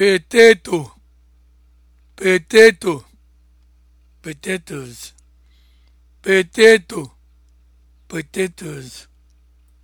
potato potato potatoes potato potatoes